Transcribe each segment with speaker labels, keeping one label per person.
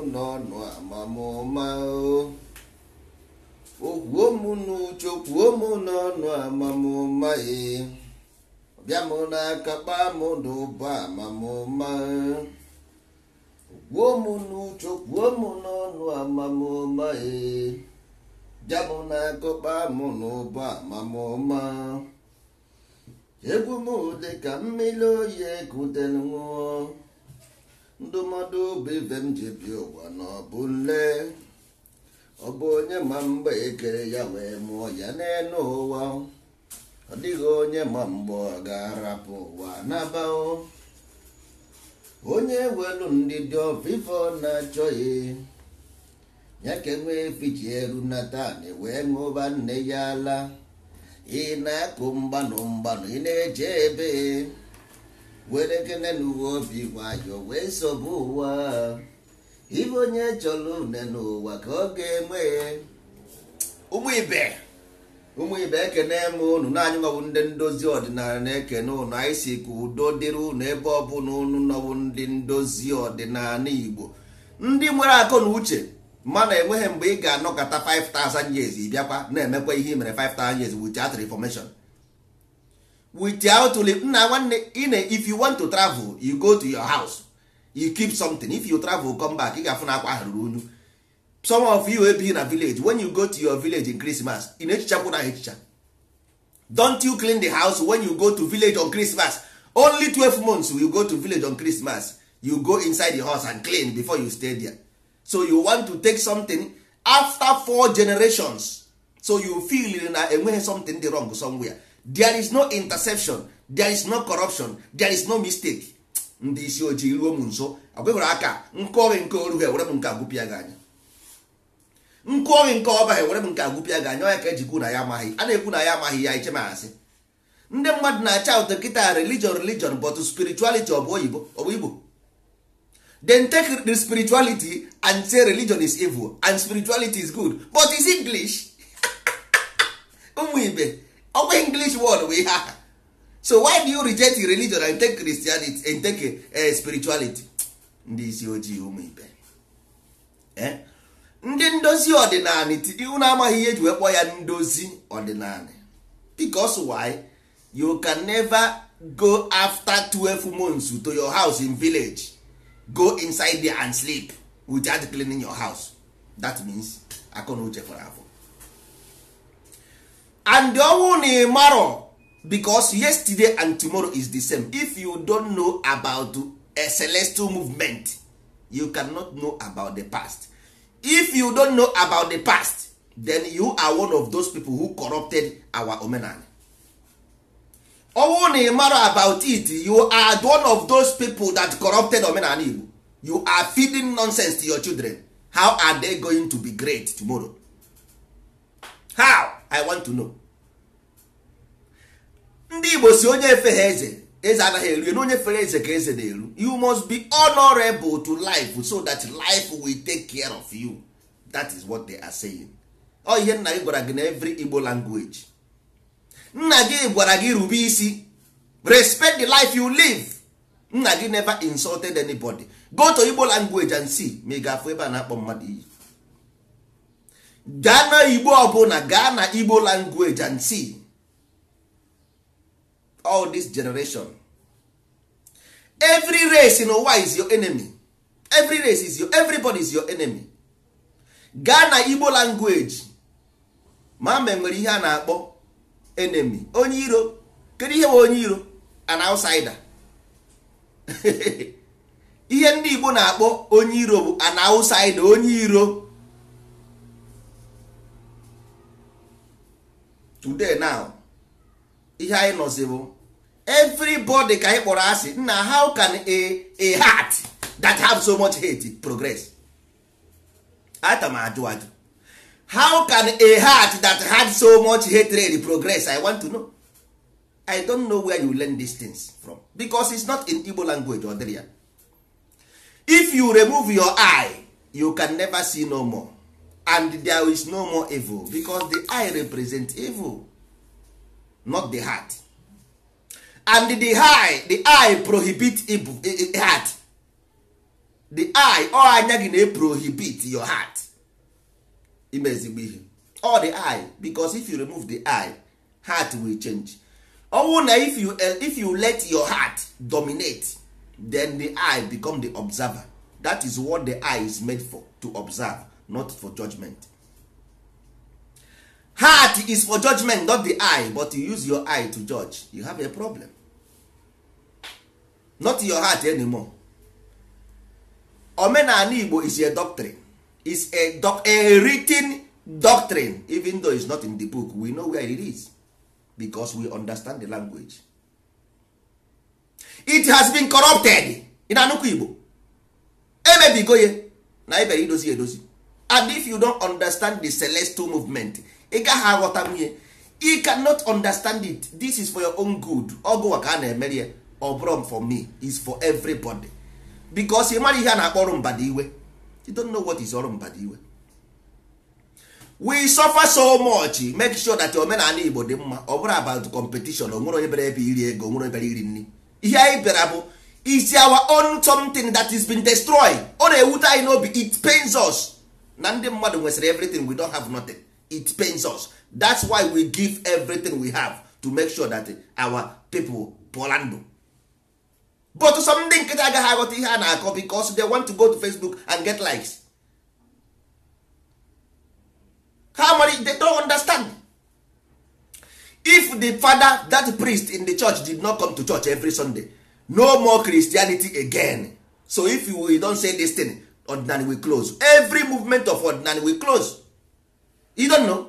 Speaker 1: ụnọ nụ n'uche kwuo mụ n'ọnụ amamụma ee ọbịa m n'aka kpaa m n'ụba amamụma kwuo n'uche kwuo n'ọnụ bịa n'ụba amamụma egwu mmiri oyi ndụmọdụ bụ ibe m ji bi ụwa na ọ bụ nle ọ bụ onye ma mgbe ekere ya wee mụọ ya n'elu ụwa ọ dịghị onye ma mgbe ọ ga-arapụ ụwa n'abawo onye welu ndị dị na-achọghị ya ka enwee fiji eru natan e wee ṅụba nne ya ala ị na-akụ mgbanụ mgbanụ ị na-eje ebe were ekene na uwe obi nwayọ wee sobe ụwa ibe onye chọrọ une n'ụwa ka ọ ga-enwe ụmụ ibe ụmụ ibe ekene m unu naanyị nwabụ ndị ndozi ọdịnala na-ekene unu anyị si ka udo dịrị ụnụ ebe ọ bụla unu nọbụ ndị ndozi ọdịnala igbo ndị nwere akọ na uche mana enweghị mgbe ị ga-anọkọta 5000 years bịakwa na-emekwa ihe i mere 5000 years with theatre information without nna nwanne ine if you want to travel you go to your house you keep something if you travel come back ị ga-afụ na akwa ahụ ruru unyu some of you in na village when you go to your village in Christmas ị na-echichakwu na echicha don't you clean the house when you go to village on Christmas only 12 months you go to village on Christmas you go inside the house and clean before you stay there so you want to take something after four generations so you feel na enweghị something dị wrong somewhere there is no interception there is no corruption there is no mistake ndị isi ojii ruo m nso agwegwere aka nke oghe nke oru ha ewere m nke agụpịa gị anya nke oghe nke ọba ha ewere m nke agụpịa gị anya onye ka eji ejikwu na ya amaghị a na-ekwu na ya amaghị ya iche masị ndị mmadụ na-acha ụtọ kịta religion religion but spirituality ọ bụ oyibo ọ bụ igbo then take the spirituality and say religion is evil and spirituality is good but is english ụmụ ibe ọ bụ English word bụ ha so why do you reject religion and take Christianity and take uh, spirituality ndị isi ojii ụmụ ibe eh? ndị ndozi ọdịnala na amaghị ihe eji wee kpọọ ya ndozi ọdịnala because why you can never go after 12 months to your house in village go inside there and sleep without cleaning your house that means akọ na uche fọrọ afọ and ọnwụ na ịmarọ because yesterday and tomorrow is the same if you don't know about a celestial movement you cannot know about the past if you don't know about the past then you are one of those people who corrupted our omenala ọnwụ na ịmarọ about it you are one of those people that corrupted omenala igbo you are feeding nonsense to your children how are they going to be great tomorrow how i want to know ndị igbo si onye efe ha eze eze anaghị eru na onye fere eze ka eze na-eru you must be honorable to life so that life will take care of you that is what they are saying ọ ihe nna gị gwara gị na every igbo language nna gị gwara gị rube isi respect the life you live nna gị never insulted anybody go to igbo language and see ma ị ga-afụ ebe a na-akpọ mmadụ iyi gaa na igbo ọbụla gaa na igbo language and see all this generation every race n'ụwa is your enemy every race is your everybody is your enemy gaa na igbo language ma mbe nwere ihe a na-akpọ enemy onye iro kedu ihe bụ onye iro an outsider ihe ndị igbo na-akpọ onye iro bụ an outsider onye iro today now ihe anyị nọzi bụ everybody ka anyị kpọrọ asị na how can a a heart that have so much hate progress atam m ajụ ajụ how can a heart that had so much hatred progress i want to know i don't know where you learn these things from because it's not in igbo language ọ dịrị ya if you remove your eye you can never see no more and there is no more evil because the eye represents evil not the heart and the eye the eye prohibit evil, eh, eh, heart the eye ọ oh, anya gị eh, na-prohibit your heart ime ezigbo ihe all oh, the eye because if you remove the eye heart will change ọnwụ oh, na if you, if you let your heart dominate then the eye become the observer that is what the eye is made for to observe not for judgment heart is for judgment not the eye but you use your eye to judge you have a problem not your heart anymore omenala igbo is a doctrine is a, doc a written doctrine even though it's not in the book we know where it is because we understand the language it has been corrupted in anụkwa igbo emebigo ya na ibere idozi edozi and if you don't understand the celestial movement ị gaghị aghọta nwunye you cannot understand it this is for your own good ọgụwa ka a na-emere ya ọ for me is for everybody because ị mara ihe a na-akpọ ọrụ mbada iwe you don't know what is ọrụ mbada iwe we suffer so much make sure that omenala Igbo dị mma ọ bụrụ about competition onwere onye bịara ebe iri ego onwere bịara iri nri ihe anyị bịara bụ is our own something that is been destroyed ọ na-ewute anyị n'obi it pains us na ndị mmadụ nwesịrị everything we don't have nothing it pains us that's why we give everything we have to make sure that our people pụọla ndụ but some ndị nkịta agaghị aghọta ihe a na-akọ because they want to go to facebook and get likes How many they don't understand if the father that priest in the church did not come to church every sunday no more christianity again so if you don say this thing ordinary we close every movement of ordinary we close you don't know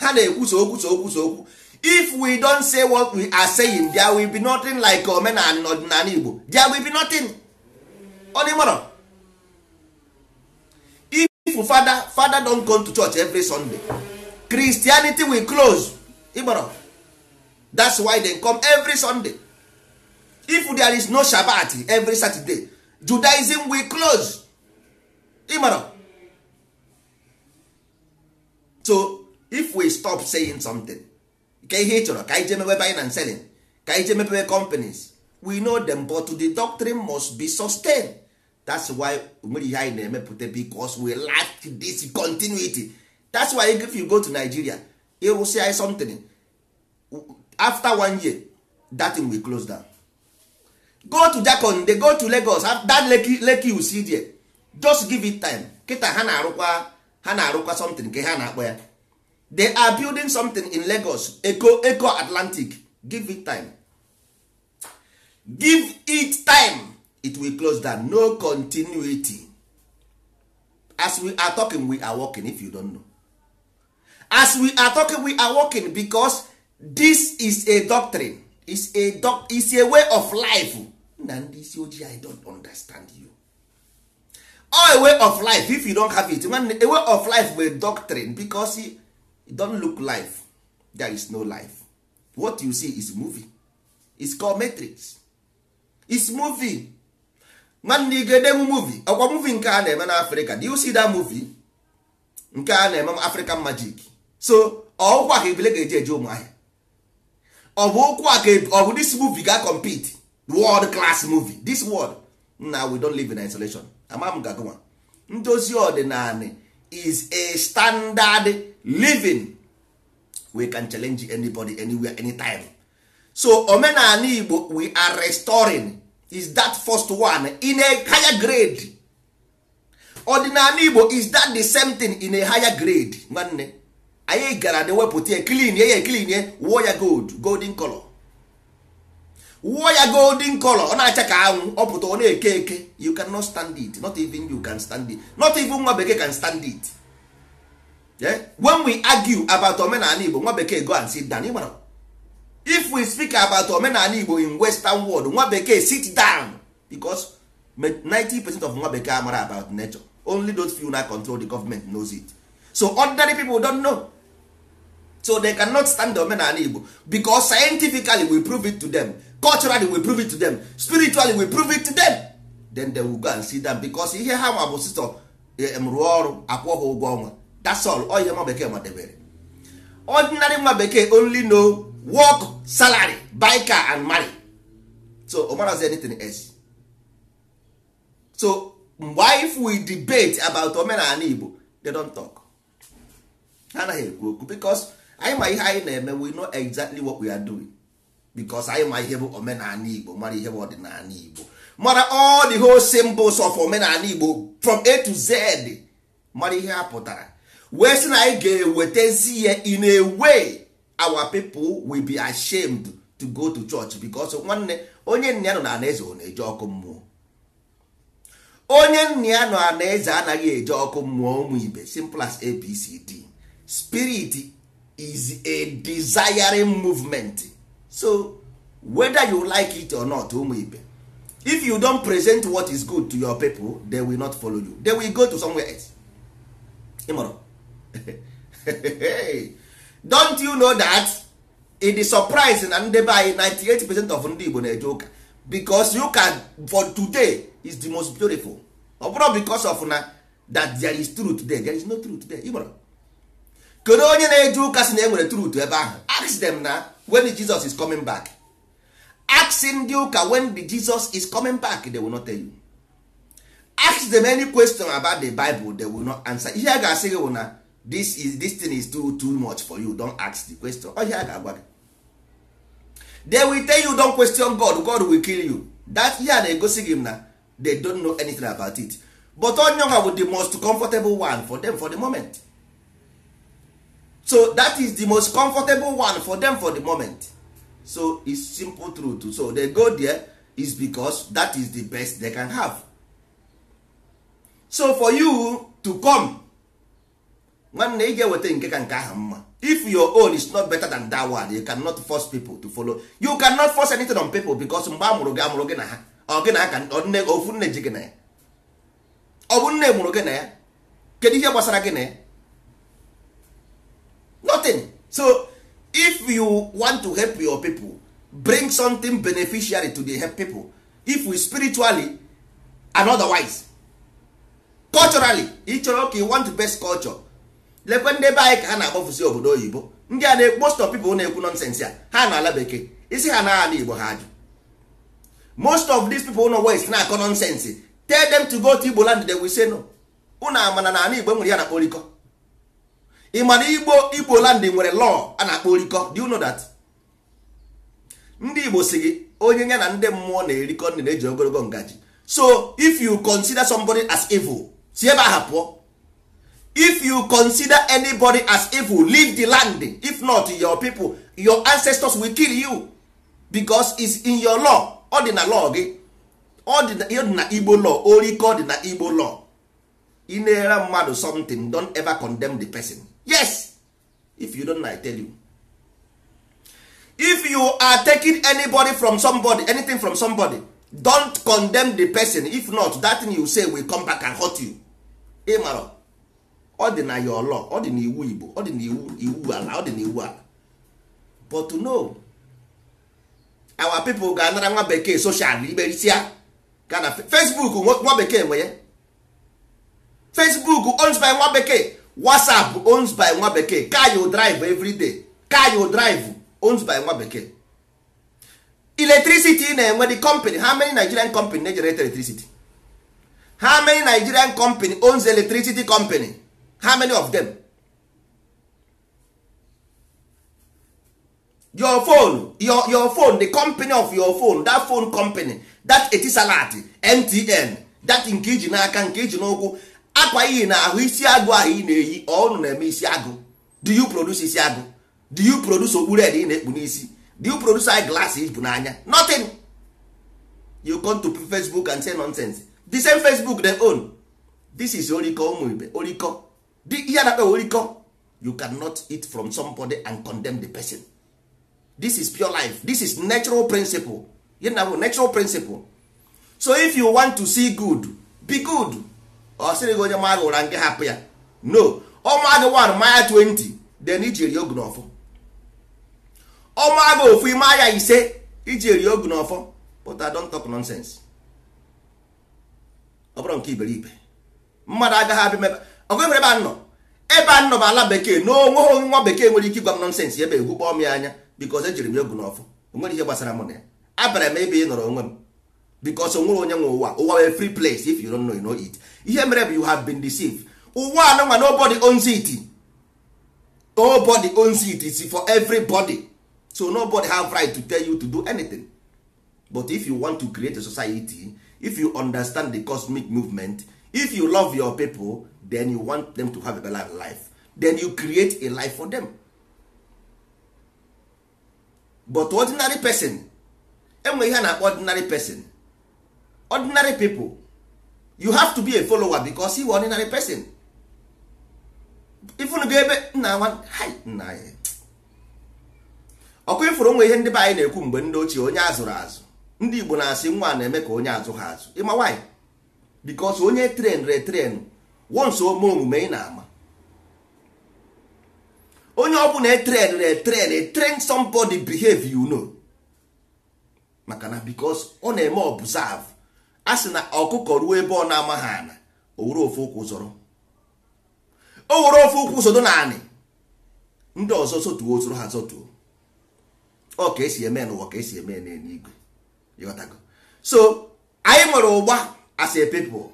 Speaker 1: ha na-ekwusa okwu so okwu if we don say what we are saying there will be nothing like omenala ọdịnala Igbo there will be nothing ọdịmọrọ if father father don come to church every Sunday Christianity will close igboro that's why they come every Sunday if there is no Shabbat every Saturday judaism we close ịmara so if we stop saying something ka ihe ị chọrọ ka anyị jee selling ka anyị jee companies we know them but the doctrine must be sustained that's why nwere ihe anyị na-emepụta because we lack this continuity that's why if you go to nigeria ịrụsị anyị something after one year that thing we close down go to jakon dey go to lagos that lake leki you see there just give it time kịta ha na-arụkwa ha na-arụkwa something nke ha na-akpọ ya they are building something in lagos eco eco atlantic give it time give it time it will close down no continuity as we are talking we are working if you don't know as we are talking we are working because this is a doctrine is a is a way of life na ndị isi ojii i don't understand you All oh, a way of life if you don't have it a way of life bụ a doctrine because it don look life there is no life what you see is movie is called matrix is movie nwanne gede movie ọkwa movie nke a na-eme Africa. do you see that movie nke a na-eme african magic so ọkwa ka ebile ga-eji eje ụmụahịa Ọbụ bụ okwu e, this movie ga compete world class movie this world na we don live in isolation amam Gagoma. ndozi ọdịnala is a standard living we can challenge anybody anywhere anytime so omenala igbo we are restoring is that first one in a higher grade ọdịnala igbo is that the same thing in a higher grade nwanne anyị gara na wepụta ya klinie ya eklinie wụọ ya gold golden color wụọ ya golden color ọ na-acha ka anwụ ọ pụta ọ na-eke eke you cannot stand it not even you can stand it not even nwa bekee can stand it yeah? when we argue about omenala igbo nwa bekee go and sit down ịmara if we speak about omenala igbo in western world nwa bekee sit down because 90% of nwa bekee amara about nature only those few na control the government knows it so ordinary people don't know so they cannot stand the omenala igbo because scientifically we prove it to them culturally we prove it to them spiritually we prove it to them then they will go and see them because ihe ha nwa bụ sistọ e, m rụọ ọrụ akwụ ha ụgwọ ọnwa that's all ọ nwa bekee madebere ordinary nwa bekee only know work salary buy car and marry so omarazi anything else so mgbe if we debate about omenala igbo they don't talk ha anaghị ekwu okwu because anyị ma ihe anyị na-eme we know exactly what we are doing because anyị ma ihe bụ omenala Igbo mara ihe bụ ọdịnala Igbo mara all the whole symbols of omenala Igbo from A to Z mara ihe a pụtara wee sị na anyị ga-ewetezi ya in a way our people will be ashamed to go to church because nwanne onye nna ya nọ na eze ọ na-eje ọkụ mmụọ onye nna ya nọ na eze anaghị eje ọkụ mmụọ ụmụ ibe simple as ABCD spirit is a desiring movement so whether you like it or not ụmụ ibe if you don present what is good to your people they will not follow you they will go to somewhere else ịmụrụ don't you know that in the surprise na ndị anyị 98 percent of ndị Igbo na-eje ụka because you can for today is the most beautiful ọ bụrụ because of na that there is truth there there is no truth there ịmụrụ kedu onye na-eje ụka si na enwere trut ebe ahụ ask dem na when Jesus is coming back ask ndị ụka when the Jesus is coming back they will not tell you ask them any question about the Bible they will not answer ihe a ga-asị gị na this is this thing is too too much for you don't ask the question ọ ihe ga-agwa gị they will tell you don question God God will kill you that ihe a na-egosi gị na they don't know anything about it but onye ọha bụ the most comfortable one for them for the moment so that is the most comfortable one for them for the moment so it's simple truth so they go there is because that is the best they can have so for you to come nwanne ị ga-eweta nke ka nke ahụ mma if your own is not better than that one you cannot force people to follow you cannot force anything on people because mgbe a mụrụ gị amụrụ gị na ha ọ gị na aka ofu nne ji gị na ya ọ bụ nne mụrụ gị na ya kedu ihe gbasara gị na ya nothing so if you want to help your people bring something beneficiary to the help people if we spiritually and otherwise culturally chọrọ ka you want best culture lekwe ndị be anyị ka ha na-akpọfụsi obodo oyibo ndị a na most of people na-ekwu nonsense ya ha na ala bekee isi ha na ala igbo ha ajụ most of these people no west na-akọ nonsense tell them to go to igbo land they will say no unu amana na ala igbo nwere ya na kporikọ ị mana igbo igbo nwere law a na-akpọ orikọ do you know that ndị igbo si gị onye ya na ndị mmụọ na-erikọ ndị na-eji ogologo ngaji so if you consider somebody as evil si ebe if you consider anybody as evil leave the land if not your people your ancestors will kill you because it's in your law ọ law gị ọ igbo law orikọ dị na igbo law ị na-ere mmadụ something don ever condemn the person yes if you don't like tell you if you are taking anybody from somebody anything from somebody don't condemn the person if not that thing you say will come back and hurt you ịmara ọ dị na your law ọ dị na iwu Igbo ọ dị na iwu iwu ala ọ dị na iwu ala but no our people ga-anara nwa bekee social imerisia ga na Facebook nwa bekee nwe ya Facebook owns by nwa bekee whatsapp owns by nwa bekee car you drive everyday car you drive owns by nwa bekee electricity na-enwe the company how many nigerian company na-generate electricity how many nigerian company owns electricity company how many of them your phone your, your phone the company of your phone that phone company that etisalat mtn that nke iji n'aka nke iji n'ụkwụ akwa iyi na ahụ isi agụ ahụ ị na-eyi ọnụ na-eme isi agụ do you produce isi agụ do you produce okpu red ị na-ekpu n'isi do you produce eye glasses bụ n'anya nothing you come to facebook and say nonsense the same facebook they own this is oriko ụmụ ibe oriko ihe na oriko you cannot eat from somebody and condemn the person this is pure life this is natural principle you know, natural principle so if you want to see good be good ọ sịrị gị onye maa gị ụra nke hapụ ya no ọma gị 1 maya 20 then eri ogu n'ọfọ ọma gị ofu ime aya ise iji eri ogu n'ọfọ but I don't talk nonsense ọ bụrụ nke iberibe mmadụ agaghị abịa mebe ọgụ ebere ebe a nọ ebe a nọ bụ ala bekee na onweghị nwa bekee nwere ike ịgwa m nọnsensị ebe egwukpọọ m ya anya because ejiri m ogu n'ọfọ onwere ihe gbasara mụ na ya abịara m ebe ị nọrọ onwe m bicos onwere onye nwe ụwa ụwa wee free place if you don't know you know it ihe mere bụ you have been deceived ụwa anụnwa nobody owns it nobody owns it is for everybody so nobody have right to tell you to do anything but if you want to create a society if you understand the cosmic movement if you love your people then you want them to have a better life then you create a life for them but ordinary person enwe ihe a na-akpọ ordinary person ordinary people you have to be a follower because you ordinary person ifunu ga ebe nna nwa nna anyị ọkụ ifuru onwe ihe ndị be anyị na-ekwu mgbe ndị ochie onye azụrụ azụ ndị igbo na-asị nwa na-eme ka onye azụ ha azụ ịma nwaanyị because onye tren retren wonso ome omume ị na-ama onye ọbụla etren retren e train somebody behave you know maka na because ọ na-eme observe a sị na ọkụkọ ruo ebe ọ na-amaghị ana o were ofe ụkwụ zọrọ o were ofe ụkwụ sodo na ndị ọzọ sotuo soro ha zotuo ọ ka esi eme n'ụwa ka esi eme n'eluigwe ịghọtago so anyị nwere ụgba as a people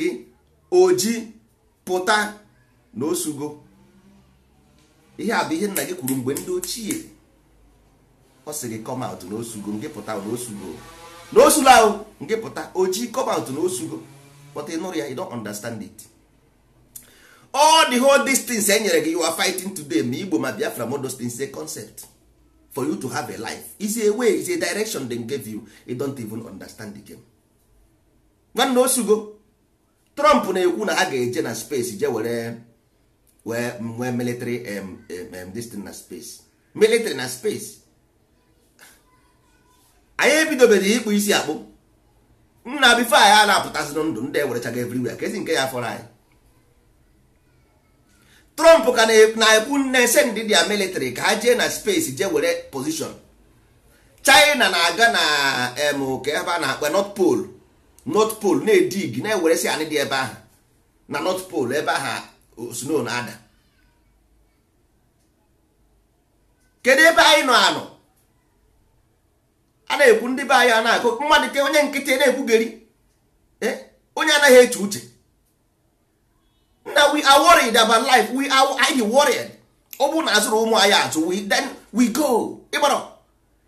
Speaker 1: gị oji pụta na osugo ihe a bụ ihe nna gị kwuru mgbe ndị ochie ọ sị gị come out na osugo gị pụta na osugo na osula ahụ nke pụta ojii cobalt na osugo but ị nụrụ ya you understand it all the whole distance e nyere gị you are fighting today ma igbo ma biafra ma those is a concept for you to have a life is a way is a direction dem give you you don't even understand the game nwanne osugo trump na-ekwu na ha ga-eje na space je were wee military um, um, this na space military na space anyị ebidobeghị ịkpụ isi akpụ nna bifo anyị a na-apụtasị ndụ ndị ewerechaga everywhere ka ezi nke ya fọrọ anyị trump ka na-ekwu nne sendị dia military ka ha jee na space jee were position china na-aga na ka ebe a na-akpa north pole north pole na-edig na-eweresi anyị dị ebe ahụ na north pole ebe ahụ sno na-ada kedu ebe anyị nọ anọ a na-ekwu ndị be anyị a na-akụ mmadụ ke onye nkịtị na-ekwugheri e, onye anaghị eche uche na we are worried about life we are anyị worried ọ bụrụ na azụrụ ụmụ anyị azụ we then we go ịgbara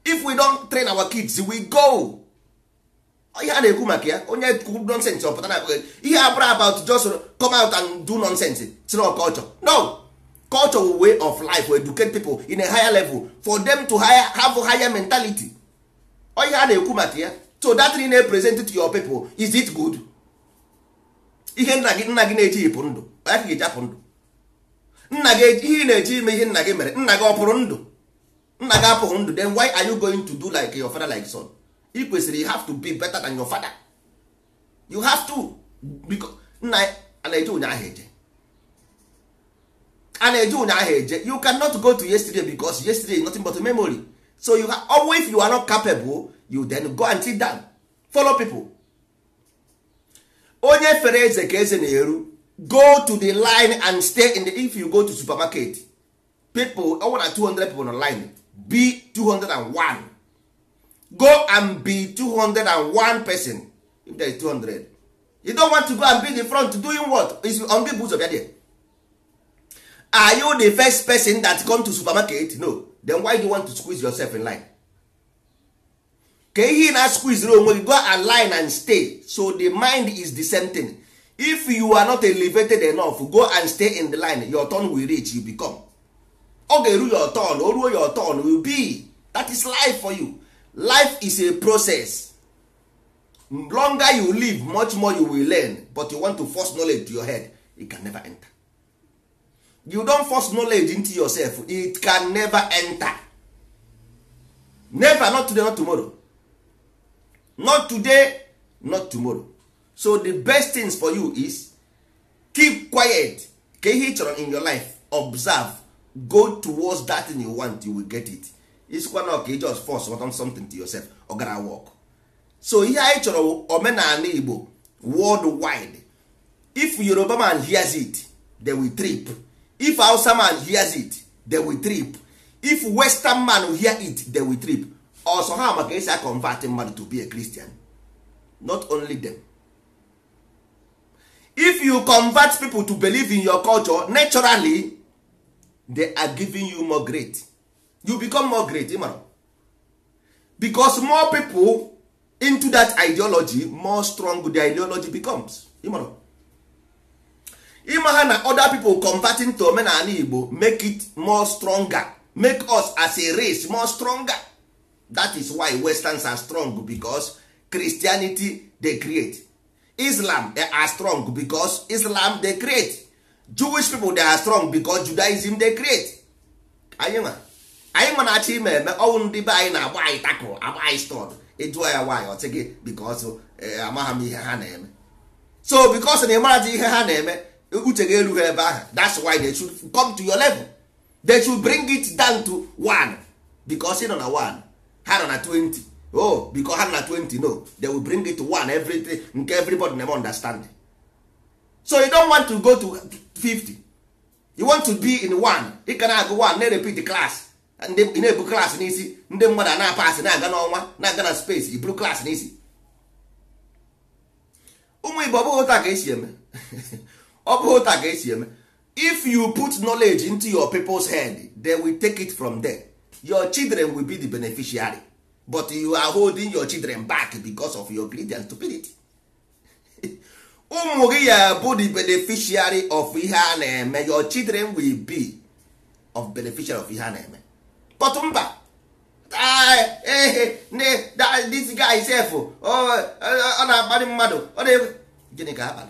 Speaker 1: if we don't train our kids we go ihe a na-ekwu maka ya onye kwuru nonsense ọpụta na ihe a abụrụ about just come out and do nonsense sir culture no culture way of life will educate people in a higher level for them to higher, have a higher mentality ọ ihe a na-ekwu maka ya To that thing na-epresent to your people is it good ihe nna gị nna gị na-eji ịpụ ndụ ya ka ga-eji apụ ndụ nna gị ihe ị na-eji ime ihe nna gị mere nna gị ọpụrụ pụrụ ndụ nna gị apụghị ndụ then why are you going to do like your father like son I kwesịrị you have to be better than your father you have to because nna a na-eje ụnyaahụ eje a na-eje ụnyaahụ eje you cannot go to yesterday because yesterday is nothing but a memory so you have, always if you are not capable you then go and sit down follow people onye fere eze ka eze na-eru go to the line and stay in the if you go to supermarket people ọ nwere 200 people on line be 201 go and be 201 person if there is 200 you don't want to go and be the front doing what is on the boots of your day. are you the first person that come to supermarket no then why do you want to squeeze yourself in line ka ihe na squeeze onwe gị go align and stay so the mind is the same thing if you are not elevated enough go and stay in the line your turn will reach you become ọ ga-eru your turn o oh, ruo your turn will be that is life for you life is a process longer you live much more you will learn but you want to force knowledge to your head it can never enter you don force knowledge into yourself it can never enter never not today not tomorrow not today not tomorrow so the best things for you is keep quiet ka ihe in your life observe go towards that thing you want you will get it isikwa na ọka just force on something to yourself ọ gara work so ihe anyị chọrọ omenala Igbo world wide if Yoruba man hears it they will trip if hausa man hears it they will trip if western man hear it they will trip also ha maka esi convert mmadụ to be a christian not only them if you convert people to believe in your culture naturally they are giving you more great you become more great ịmara because more people into that ideology more strong the ideology becomes ịmara ịma ha na other people converting to omenala igbo make it more stronger make us as a race more stronger that is why westerns are strong because christianity dey create islam they are strong because islam dey create jewish people dey are strong because judaism dey create anyị ma anyị ma na-achọ ime eme ọnwụ ndị be anyị na-agba anyị tako agba anyị stọd ịjụọ ya nwaanyị ọ gị because eh, amaghị m ihe ha na-eme so because na ịmarazi ihe ha na-eme uche ga erughị ebe ahụ that's why they should come to your level they should bring it down to one because ị nọ na one ha nọ na 20 oh because ha nọ na 20 no they will bring it to one everything nke everybody na understand so you don't want to go to 50 you want to be in one ị ka na-agụ one na-repeat class ị na-ebu class n'isi ndị mmadụ a na-apasị na-aga n'ọnwa na-aga na space iburu class n'isi ụmụ igbo ọ bụghị ụta ka esi eme ọ bụghị ụta ka esi eme if you put knowledge into your people's head they will take it from there your children will be the beneficiary but you are holding your children back because of your greed and stupidity ụmụ gị ya bụ the beneficiary of ihe a na-eme your children will be of beneficiary of ihe a na-eme but mba ah, eh, eh, this guy sef oh, eh, ọ na-akparị mmadụ ọ na-egwe gịnị ka ha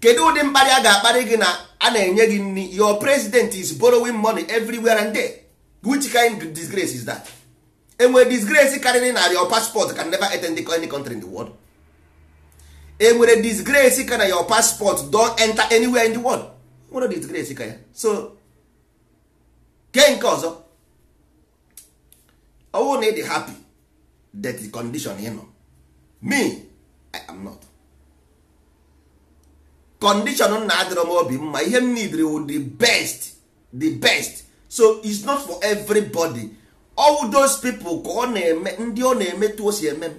Speaker 1: kedu ụdị mkparị a ga-akparị gị na a na-enye gị nri your president is borrowing money everywhere and there which kind of disgrace is that enwere disgrace karịrị na your passport can never attend any country in the world enwere disgrace ka na your passport don enter anywhere in the world nwere disgrace ka ya so ke nke ọzọ ọwụ na ịdị happy that condition you know. me i am not condition na adịrọ m obi mma ihe m needri wu the best the best so it's not for everybody all those people ka ọ na-eme ndị ọ na-eme o si eme m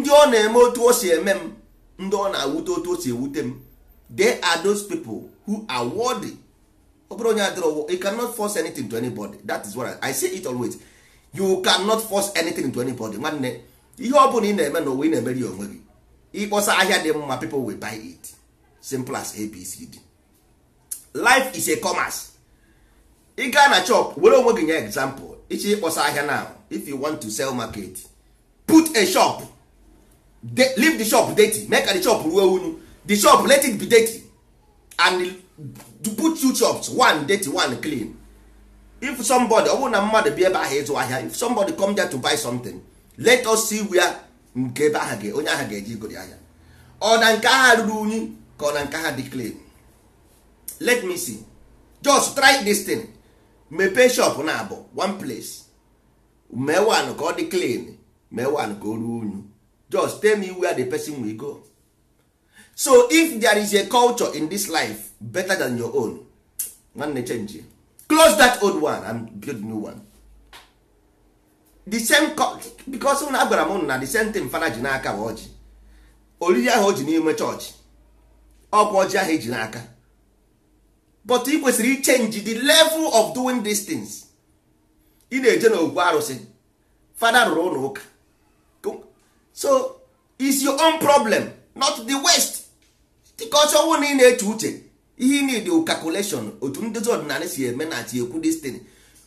Speaker 1: ndị ọ na-eme otu o si eme m ndị ọ na-awute otu o si ewute m they are those people who are worthy ọ bụrụ onye adịrọ you cannot force anything to anybody that is what I, I say it always you cannot force anything to anybody nwanne ihe ọ bụla ị na-eme n'ụwa ị na-emeri onwe gị ịkpọsa ahịa dị mma people will buy it simple as abcd life is a commerce ị gaa na chop were onwe gị nye example ichi ịkpọsa ahịa now if you want to sell market put a shop de leave the shop dirty make the shop ruo unu the shop let it be dirty and put two shops one dirty one clean if somebody ọ bụrụ na mmadụ bi ebe ahụ ịzụ ahịa if somebody come there to buy something let us see where nke ebe aha onye aha ga-eji igori ahịa ọ na nke agha ruru unyi ka ọ na nke agha dị clean let me see just try this thing mepee shop na abụ one place mee one ka ọ dị clean mee one ka o ruo unyi just tell me where the person will go so if there is a culture in this life better than your own nwanne change close that old one and build new one the same because ụnụ agwara m na the same thing fada ji n'aka bụ ọjị oriri ahụ o ji n'ime chọọchị ọkwa ọjị ahụ eji n'aka but ị kwesịrị ichenji the level of doing these things ị na-eje n'ogwu arụsị fada rụrụ ụlọ ụka so is your own problem not the west because ọnwụ na ị na-eche uche ihe ị need calculation otu ndị ọdịnala si eme na ati ekwu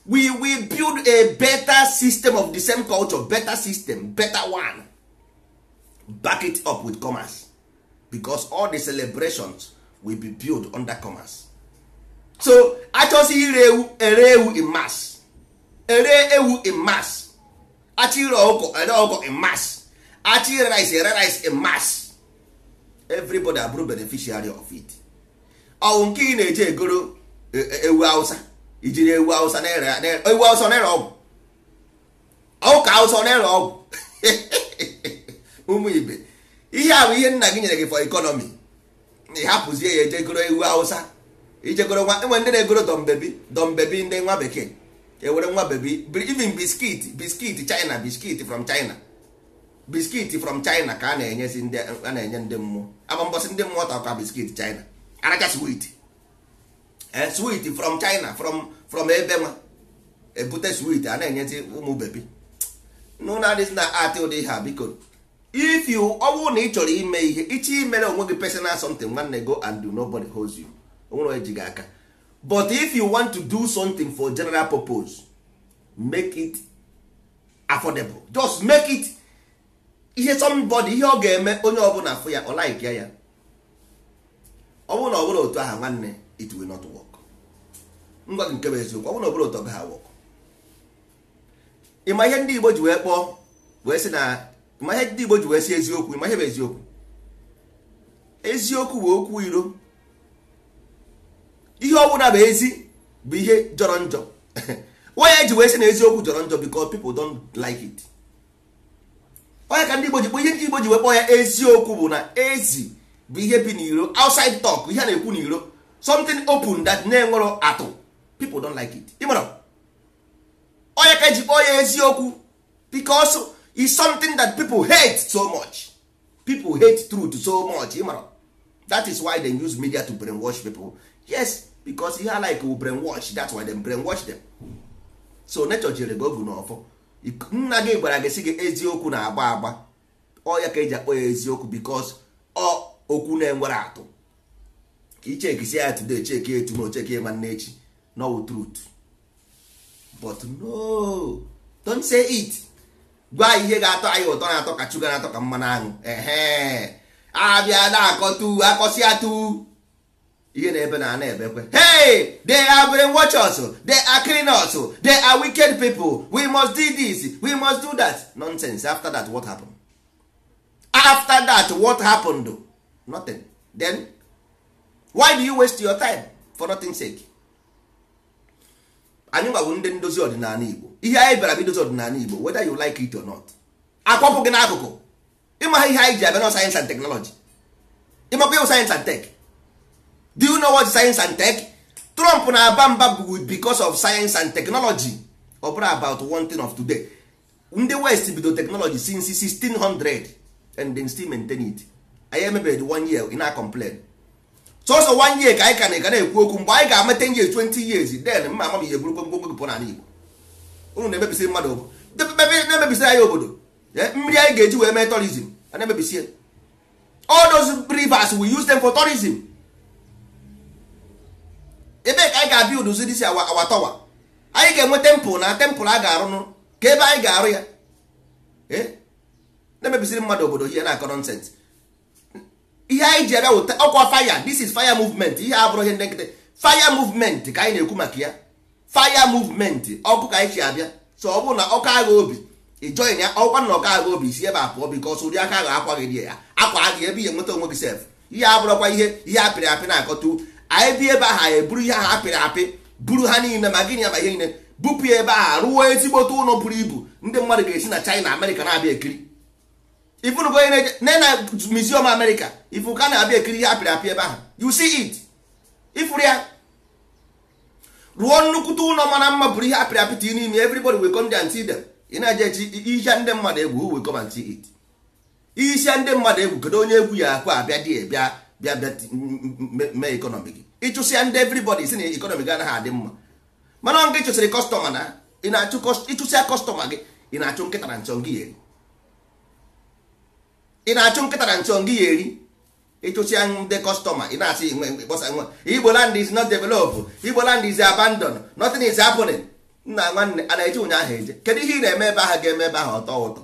Speaker 1: we will build a better system of the same culture better system better one back it up with commerce because all the celebrations will be build under commerce so achọsi ire ewu ere ewu in mass ere ewu in mass achọ ire ọkụkọ ere ọkụkọ in mass achọ rice ere rice in mass everybody abụrụ beneficiary of it ọwụ nke ị na-eje egoro e, e, ewu Hausa ijiri ewu awụsa na ewu awụsa na-ere ọgwụ ọwụka awụsa na-ere ọgwụ ụmụ ibe ihe ahụ ihe nna gị nyere gị for economy ị hapụzie ya ejegoro ewu awụsa ijegoro nwa enwe ndị na-egoro dọmbebi dọmbebi ndị nwa bekee ewere nwa bebi even biskit biskit china biskit from china biskit from china ka a na-enye ndị mmụọ ama mbọsị ndị mmụọ ta ka biskit china aracha swit Eh, sweet from china from from ebe nwa ebute sweet a na-enyezi ụmụ bebi n'ụlọ adịghị na atị ụdị ha a biko if you ọwụ na ị chọrọ ime ihe iche imere onwe gị personal something nwanne go and do nobody holds you onwere onye ji gị aka but if you want to do something for general purpose make it affordable just make it ihe somebody ihe ọ ga-eme onye ọbụla afụ ya ọ like ya ya ọ bụrụ na ọ bụrụ otu aha nwanne it will not work. ngwa gị nke bụ eziokwu ọ bụrụ na ọbụla ụtọ ha awọkọ ịma ihe ndị Igbo ji wee kpọọ wee sị na ịma ihe ndị Igbo ji wee si eziokwu ịma ihe bụ eziokwu eziokwu bụ okwu iro ihe ọbụla bụ ezi bụ ihe jọrọ njọ onye ji wee sị na eziokwu jọrọ njọ because people don't like it onye ka ndị Igbo ji kpọ ihe ndị Igbo ji wee kpọọ ya eziokwu bụ na ezi bụ ihe bi n'iro outside talk ihe a na-ekwu n'iro something open that na-enwero atụ people don like it ịmara onye ka eji kpọọ ya eziokwu because is something that people hate so much people hate truth so much ịmara that is why they use media to brainwash pipo yes because ihe like will brainwash that's why dem brainwash them so nature jere gị ogu n'ọfọ nna gị gwara gị si gị eziokwu na-agba agba ọya ka eji akpọ ya eziokwu because ọ okwu na-enwere atụ ka ichekisia ya today cheke etu na cheki ya nwanne echi no truth but no don't say it gwa ihe ga-atọ anyị ụtọ na-atọ ka chuga na-atọ ka mmanụ aṅụ ehe abịa na-akọtu akọsịa tu. ihe na-ebe na ana kwe. hey they are brain watchers they are cleaners! they are wicked people we must do this we must do that nonsense after that what happened after that what happened nothing then why do you waste your time for nothing sake anyị gbagburu ndị ndozi ọdịnala igbo ihe anyị bịara bụ idozi ọdịnala igbo whether you like it or not akwapụ gị n'akụkụ ịmaha ihe anyị ji abịa na sayensị and teknọlọji ịmakwa ịwụ sayensị and tek do you know what sayensị and tech trump na-aba mba bụ because of sayensị and teknọlọji ọ bụrụ about one thing of today ndị west bido teknọlọji since 1600 and dem still maintain it anyị emebere the one year ị na-complain sọsọ wan year ka anyị ka na-ega na-ekwu okwu mgbe anyị ga-ama nye years twenty years then mma ama m ihe gburu gbogbo pụọ n'ala Igbo unu na-emebisi mmadụ na-emebisi anyị obodo mmiri anyị ga-eji wee mee tourism a na-emebisi all those rivers we use them for tourism Ebe ka anyị ga-abịa uduzi disi awa towa anyị ga-enwe temple na temple a ga-arụnụ ka ebe anyị ga-arụ ya na-emebisiri mmadụ obodo ihe na akọrọ nọnsensị ihe anyị ji abịa wụta ọkwa faya this is fire movement ihe abụrụ ihe ndị nkịtị fire movement ka anyị na-ekwu maka ya faya movement ọkụ ka anyị si abịa so ọ bụrụ na ọkụ agha obi ịjọin ya ọkwa na ọkụ agha obi si ebe a pụọ ọsọ ụdị aka agha akwa gị ya akwa agha ebe ihe nweta onwe gị sef ihe abụrụkwa ihe ihe apịrị apị na-akọtu anyị bi ebe ahụ eburu ihe ahụ apịrị apị buru ha niile ma gịnị ma ihe niile bupụ ya ebe ahụ rụọ ezigbote ụlọ buru ibu ndị mmadụ ga-esi na China na-abịa ekiri ifunu bụ onye na na museum America ifu ka na-abịa ekiri ihe apịrị apị ebe ahụ you see it ifuru ya ruo nnukwute ụlọ mara mma bụrụ ihe apịrị apị tinye n'ime everybody will come and see them ị na-eje echi ihe ndị mmadụ egwu who will come and see it isi ndị mmadụ egwu kedu onye egwu ya akwa abịa dị bịa bịa bịa mee ekonomi gị ịchụsịa ndị everybody si na ekonomi gị anaghị adị mma mana ọ nke ịchụsịrị kọstọma na ịchụsịa kọstọma gị ị na-achụ nkịta na nchọ gị ya. ị na-achụ nkịta na nchụ gị ya eri ịchụsịa ndị kọstọma ị na-asị kpọsa nwa igbo land is not developed igbo land is abandon nothing is happening nna nwanne a na-eje ụnyaahụ eje kedu ihe ị na-eme ebe ga-eme ebe ahụ ọtọ ụtọ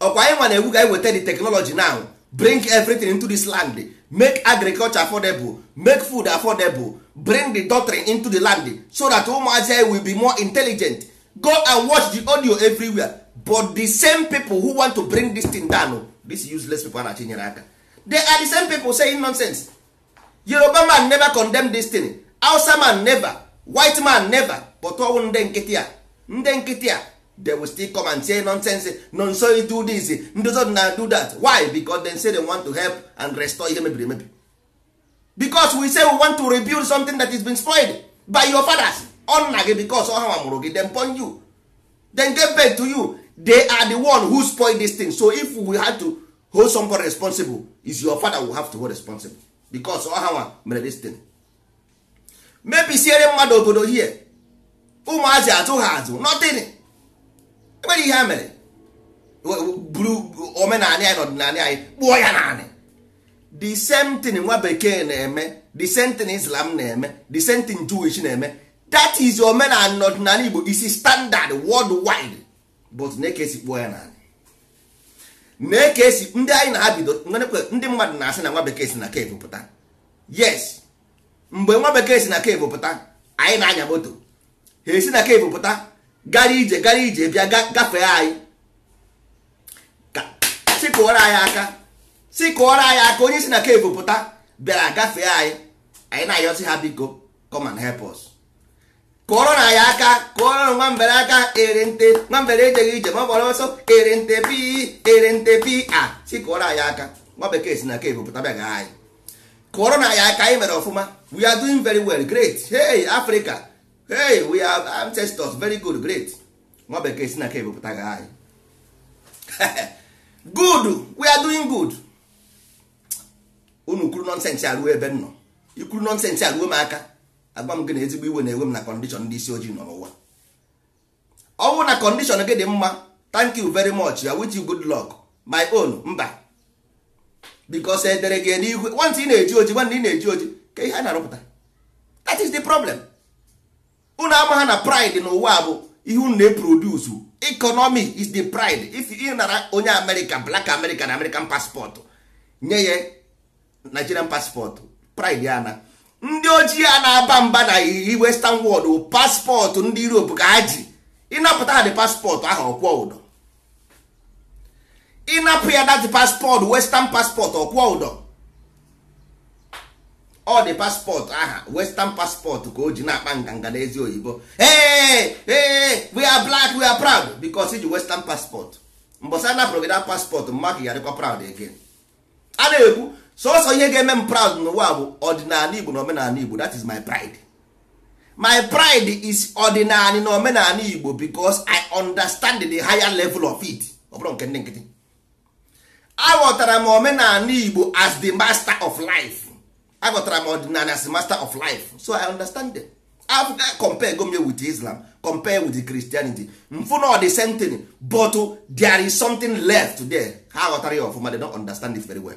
Speaker 1: ọkwa anyị nwa na ewu ga anyị weta the technology now bring everything into this land make agriculture affordable make food affordable bring the doctrine into the land so that ụmụazị will be more intelligent go and watch the audio everywhere but the same people who want to bring this thing down this useless people a na-achinyere aka they are the same people saying nonsense yoruba man never condemn this thing Hausa man never white man never but ọwụ ndị nkịtị a ndị nkịtị a they will still come and say nonsense nonso do this ndozo na do that why because they say they want to help and restore ihe mebiri emebi because we say we want to rebuild something that is been spoiled by your fathers or nna gị because ọ ha mụrụ gị then pon you then get back to you they are the one who spoil this thing so if we had to hold somebody responsible is your father will have to hold responsible because ọhawa oh, mere this thing mebisiere mmadụ obodo here. ụmụazị azụ ha azụ nothing enwere ihe a mere buru omenala anyị na ọdịnala anyị kpụọ ya naanị the same thing nwa bekee na-eme the same thing islam na-eme the same thing jewish na-eme that is omenala na ọdịnala igbo is standard worldwide but na-eke esi kpuo ya n'ala na-eke esi ndị anyị na ha ndị mmadụ na-asị na nwa bekee si na kevu pụta yes mgbe nwa bekee si na kevu pụta anyị na-anya moto ha esi na kevu pụta gara ije gara ije bịa gafee anyị sikụọrọ anyị aka sikụọrọ anyị aka onye si na kevu pụta bịara gafee anyị anyị na-ayọsị ha biko come and help us kụọrọ na ya aka kụọrọ na nwambere aka ere nte nwambere ejeghị ije ma ọ gbara ọsọ ere nte pi ere nte pi ah, a si kụọrọ anyị aka nwa bekee si na ke ebupụta bịa gaa anyị kụọrọ na ya aka anyị mere ọfụma we are doing very well great hey africa hey we are ancestors very good great nwa bekee si na ke ebupụta gaa anyị good we are doing good unu kwuru nọnsensị aruo ebe m nọ ikwuru nọnsensị aruo m aka agwa m gị na ezigbo iwe na-ewe m na kọndishọn ndị isi ojii nọ n'ụwa ọ bụrụ na kọndishọn gị dị mma thank you very much ya with you good luck my own mba bikos edere gị n'igwe nwantị ị na-eji oji nwanne ị na-eji oji ka ihe a na-arụpụta that is the problem unu ama ha na pride n'ụwa bụ ihe unu na-eproduce economy is the pride if ị nara onye amerịka black america na american paspọtụ nye ya nigerian paspọtụ pride ya na ndị ojii a na-aba mba na iyi western world bụ paspọtụ ndị europe ka ha ji ịnapụta ha dị paspọtụ ahụ ọkwọ ụdọ ịnapụ ya dat paspọtụ western paspọtụ ọkwọ ụdọ ọ dị paspọtụ aha western paspọtụ ka o ji na-akpa nganga n'ezi oyibo ee ee we are black we are proud because iji western paspọtụ mbọsa a napụrụ gị na paspọtụ mmadụ yarịkwa proud again a na-ekwu sọsọ ihe ga-eme m proud n'ụwa bụ ọdịnala igbo na omenala igbo that is my pride my pride is ọdịnala na omenala igbo because i understand the higher level of it Ọbụla nke ndị nkịtị aghọtara m omenala igbo as the master of life aghọtara m ọdịnala as the master of life so i understand them africa compare gome with islam compare with christianity mfu na the same thing but there is something left there ha ghọtara ya ọfụma they don't understand it very well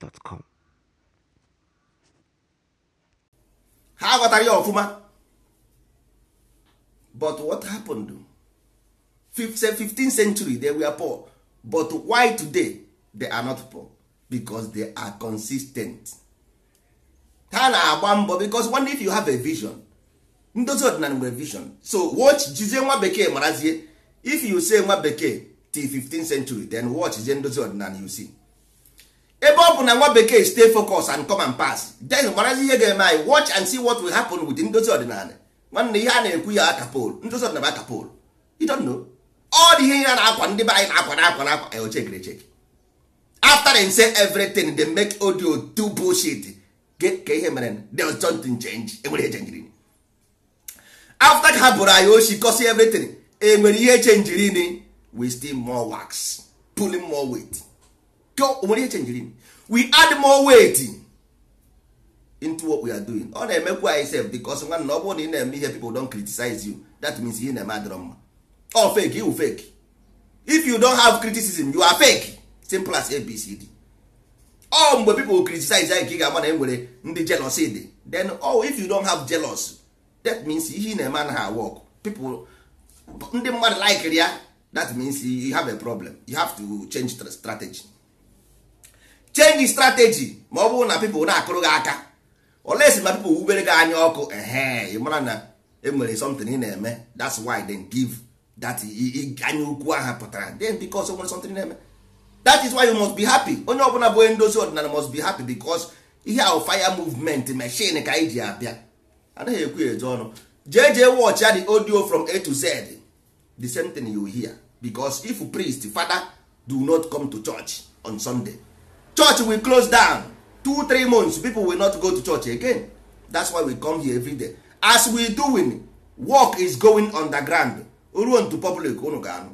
Speaker 2: gmail.com
Speaker 1: ha ghọtara ya ọfụma but what happened 15th century they were poor but why today they are not poor becos they are consistent ha na-agba mbọ because one if you have a vision ndozi ọdịnala nwere vision so watch jizie nwa bekee marazie if you say nwa bekee till 15th century then watch jizie ndozi ọdịnala you see ebe ọ bụ na nwa bekee stay focus and come and pass then gbarazi ihe ga-eme anyị watch and see what will happen with ndozi ọdịnala nwanne ihe a na-ekwu ya akapol ndozi ọdịnala akapol you don't know all the ihe ihe na-akwa ndị be anyị na-akwa na-akwa na-akwa eoche gere check after they say everything dey make audio do bullshit ka ihe mere there was something change enwere ihe chenjiri after ka ha bụrụ anyị oshi cos everything enwere ihe chenjiri we still more wax pulling more weight onwere ihe chenjiri we add more weight into what we are doing ọ na-emekwa anyị sef because nwanna ọ bụrụ na ị na-eme ihe people don criticize you that means ihe na-eme adịrọ mma ọ fake you fake if you don have criticism you are fake simple as abcd ọ mgbe people criticize anyị ka ị ga-ama na e nwere ndị jealousy dị then oh if you don have jealous that means ihe ị na-eme anaghị awok people ndị mmadụ likere ya that means you have a problem you have to change strategy change strategy ma ọ bụrụ na people na-akụrụ gị aka si ma people wubere gị anya ọkụ ehe ịmara na enwere something ị na-eme that's why then give that anya ukwu ahụ pụtara then because e nwere something na-eme that is why you must be happy onye ọbụla bụ onye ndozi ọdịnala must be happy because ihe ahụ fire movement machine ka anyị ji abịa Adịghị ekwu eje ọnụ jee jee the audio from a to z the same thing you hear because if priest father do not come to church on sunday church will close down two three months people will not go to church again that's why we come here every day as we doing work is going underground ruo ntu public unu ga-anụ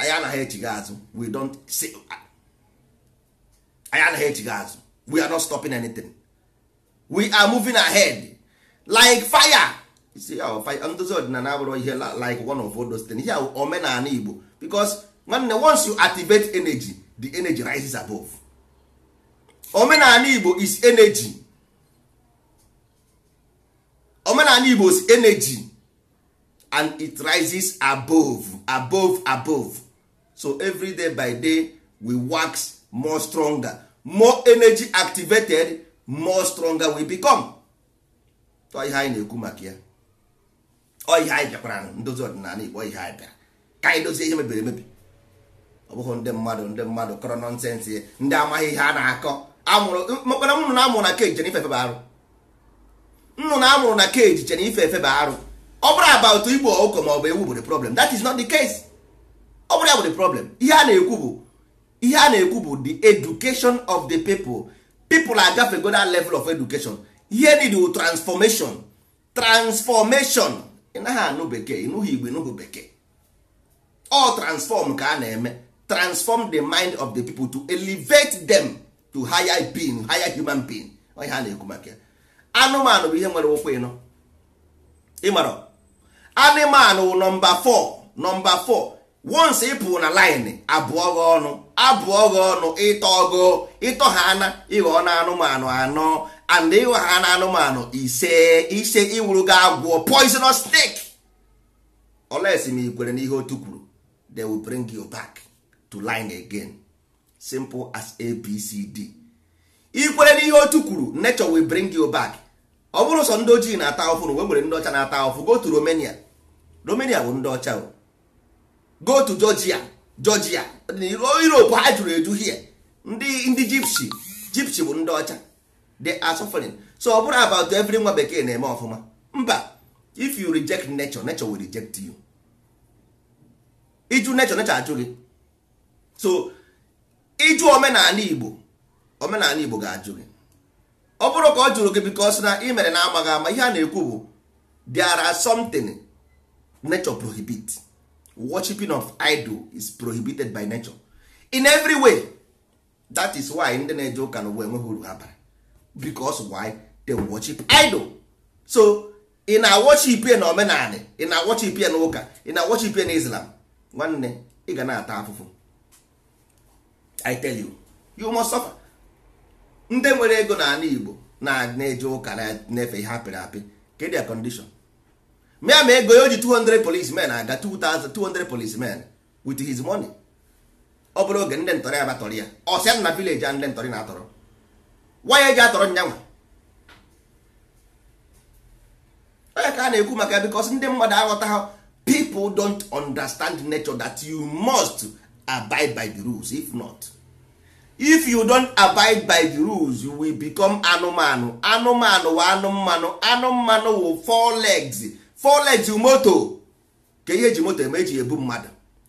Speaker 1: anyị anaghị echighi azụ we don't say anyị anaghị echighi azụ we are not stopping anything we are moving ahead like fire see fire. ndozi ọdịnala abụrụ ihe like one of those things ihe omenala igbo because nwanne once you activate energy the energy rises above omenala igbo is energy omenala igbo is energy and it rises above above above so every day by day we wax more stronger more energy activated more stronger we become ọ ihe anyị na-ekwu maka ya ọ ihe anyị bịakwara ndozi ọdịnala igbo ihe anyị bịara ka anyị dozie ihe mebiri emebi ọ bụghị ndị mmadụ ndị mmadụ kọrọ nọnsensị ndị amaghị ihe a na-akọ mekpara nnụnụ na-amụrụ na keji chere ifefe bụ arụ nnụnụ amụrụ na keji chere ifefe bụ arụ ọ bụrụ about igbo ụkọ ma ọ bụ ewu bụ the problem that is not the case ọ bụrụ ya bụ the problem ihe a na-ekwu bụ ihe a na-ekwu bụ the education of the people people agafego that level of education ihe niile transformation transformation ị naghị anụ bekee ịnụghị igbo ịnụghị bekee ọ transform ka a na-eme transform the mind of the people to elevate them to higher being higher human being onye ha na-ekwu maka anụmanụ bụ ihe nwere ụkwụ ịnọ ịmara anụmanụ nọmba 4 nọmba 4 once ị pụrụ na line abụọ gị ọnụ abụọ gị ọnụ ịtọ gị ịtọ ha na ịghọ na anụmanụ anọ and ịghọ ha na anụmanụ ise ise ịwụrụ gị agwọ poisonous snake olesi ma ị kwere n'ihe otu kwuru they will bring you back to line again simple as abcd ikwere n'ihe otu kwuru nature will bring you back ọ bụrụ sọ ndị ojii na-ata ahụfụ na nwere ndị ọcha na-ata ahụfụ go to romania romania bụ ndị ọcha go to georgia georgia europe ha jụrụ eju hie ndị ndị gypsy gypsy bụ ndị ọcha they are suffering so ọ bụrụ about every nwa bekee na-eme ọfụma mba if you reject nature nature will reject you iju nature nature ajụ gị so ịjụ omenala igbo omenala igbo ga-ajụ gị ọ bụrụ ka ọ jụrụ gị because na ị mere na amaghị ama ihe a na-ekwu bụ there are something nature prohibit worshiping of idol is prohibited by nature in every way that is why ndị na-eje ụka na ụwa enweghị uru bara why they worship idol so ị na-worship na omenala ị na-worship na ụka ị na-worship na islam nwanne ị ga na-ata afụfụ i tell you you must suffer ndị nwere ego n'ala igbo na-eje ụka na-efe ihe apịrị apị kedu ya condition mịa ma ego ya o ji 200 policemen aga 200 policemen with his money ọ bụrụ oge ndị ntọrị abatọrị ya ọsịa na village a ndị ntọrị na-atọrọ waya eji atọrọ nyanwa onye ka a na-ekwu maka because ndị mmadụ aghọta people don't understand nature that you must abide by the rules if not if you don abide by the rules you will become anụmanụ anụmanụ wa anụmanụ anụmanụ wụ four legs four legs moto ka ihe ji moto eme eji ebu mmadụ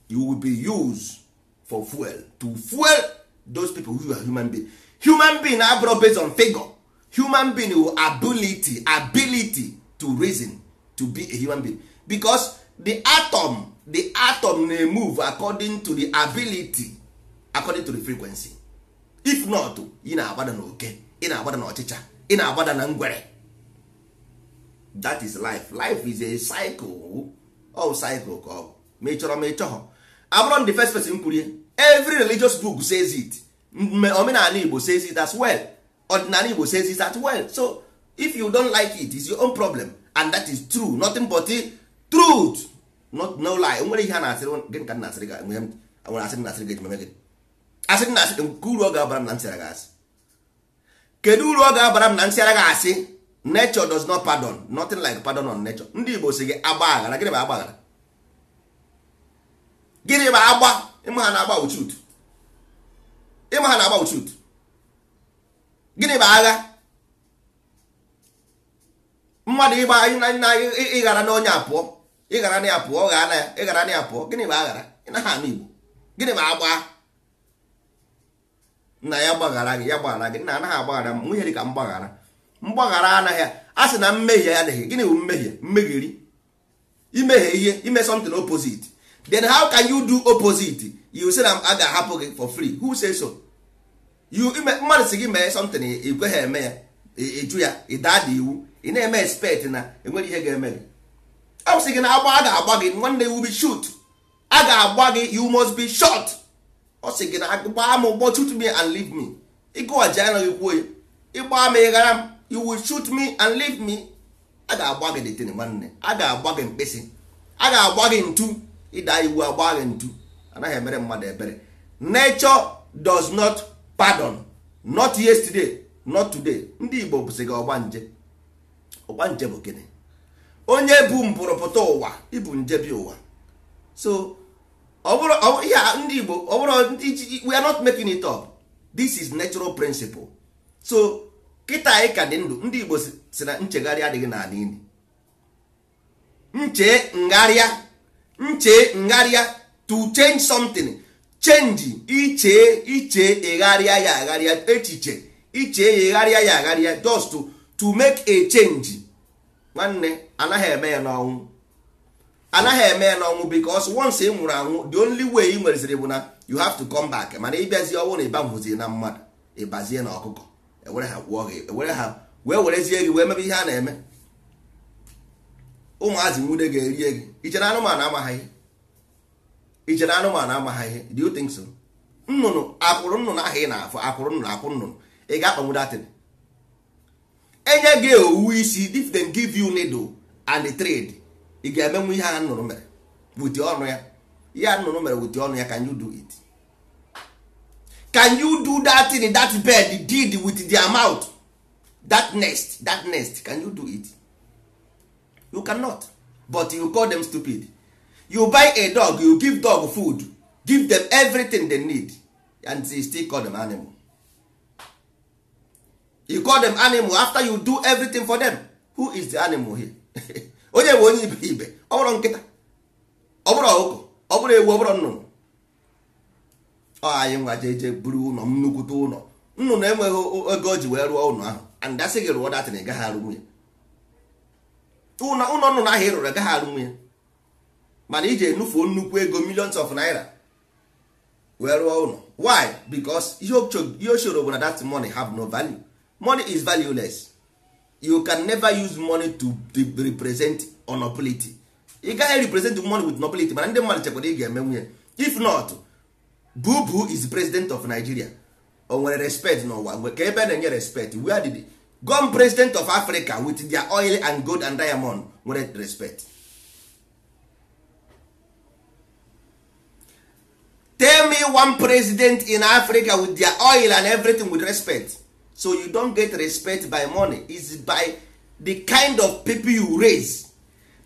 Speaker 1: you will be used for fuel to fuel those people who are human being human being abụrụ based on figure human being wụ ability ability to reason to be a human being because the atom the atom na-emove according to the ability according to the frequency if not ị na-agbada na oke ị na-agbada na ị na-agbada na ngwere that is life life is a cycle all cycle ka ọ bụ ma ị chọrọ ma ị chọghọ abụrụ the first person kwurie every religious book says it omenala Igbo says it as well ọdịnala Igbo says it as well so if you don't like it it's your own problem and that is true nothing but truth not no lie nwere ihe a na-asịrị gị ka na-asịrị gị nwere asịrị na-asịrị gị ejimeme gị asị na asị nke uru ọ ga-abara m na nsịara gị asị kedu uru ọ ga-abara m na nsịara gị asị nature does not pardon nothing like pardon on nature ndị Igbo si gị agba aghara gịnị bụ agba aghara gịnị bụ agba ịma ha na-agba uchut ịma ha na-agba uchut gịnị bụ agha mmadụ ịgba ịghara na onye apụọ ịghara na ya pụọ ghaa na ya ịghara na ya pụọ gịnị bụ aghara ị na ha na Igbo gịnị bụ agba nna ya gbaghara gị ya gbaghara gị nna anaghị agbaghara m nwunye dị ka mgbaghara mgbaghara anaghị a sị na mmehie ya adịghị gịnị bụ mmehie mmegheri imehie ihe ime something opposite then how can you do opposite you say na a ga-ahapụ gị for free who say so you mmadụ si gị mee something ị eme ya ịjụ ya ịda dị iwu ị na-eme expect na enwere ihe ga-eme gị ọ sị gị na agba a ga-agba gị nwanne iwu bi shoot a ga-agba gị you must be short. ọ sị gị na gbaa m ụgbọ shoot me and leave me ịgụwaji anaghị kwuo ya ịgbaa m ịghara m iwu will shoot me and leave me a ga-agba gị detene nwanne a ga-agba gị mkpịsị a ga-agba gị ntu ịda iwu agba gị ntu anaghị emere mmadụ ebere nature does not pardon not yesterday not today ndị Igbo bụsị gị ọgba nje bụ gịnị onye bụ mpụrụpụta ụwa nje bi ụwa so ihe bụrụ ndị Igbo ọ bụrụ ndị we are not making it up this is natural principle so kịta anyị ka dị ndụ ndị Igbo si na nchegharị adịghị n'ala ili nche ngharịa nche ngharịa to change something change iche iche egharịa ya agharịa echiche iche ya egharịa ya agharịa just to, to make a change nwanne anaghị eme ya n'ọnwụ anaghị eme ya n'ọnwụ because once ị nwụrụ anwụ the only way ị nwereziri bụ na you have to come back mana ịbịazi ọnwụ na ịbanwụzie na mmadụ ịbazie na ọkụkọ ewere ha gwụọ gị ewere ha wee werezie gị wee mebe ihe a na-eme ụmụazị nwude ga-erie gị ichere anụmanụ amaghị ihe ichere anụmanụ amaghị ihe do you think so nnụnụ akwụrụ nnụnụ ahụ ị na-afụ akwụrụ nnụnụ akwụ nnụnụ ị ga-akpanwu datin enye gị owu isi if they give you needle and trade ị ga-emenwu ihe a nnụrụ mere wuti ọnụ ya ihe a nnụrụ mere wuti ọnụ ya can you do it can you do that in that bed did with their mouth that nest that nest can you do it you cannot but you call them stupid you buy a dog you give dog food give them everything they need and you still call them animal you call them animal after you do everything for them who is the animal here onye bụ onye ibe ọ bụrụ nkịta ọ bụrụ ọkụkọ ọ bụrụ ewu ọ bụrụ nnụnụ ọ anyị nwa jeje buru ụlọ m nnukwute ụlọ nnụnụ enweghị ego o ji wee rụọ ụlọ ahụ andasị gị rụọ datịn ị gaghị arụnwu ya ụlọ nnụnụ ahụ ị rụrụ agaghị arụnwu ya mana iji enufuo nnukwu ego millions of naira wee rụọ ụlọ why because ihe o choro bụ na that money have no value money is valueless you can never use money to represent nobility you gaghị represent money with nobility mana ndị mmadụ chekwara ị ga-eme nwunye if not bubu is president of nigeria o nwere respect n'ụwa ka ebe na-enye respect where did gone president of africa with their oil and gold and diamond nwere respect tell me one president in africa with their oil and everything with respect so you don't get respect by money is by the kind of people you raise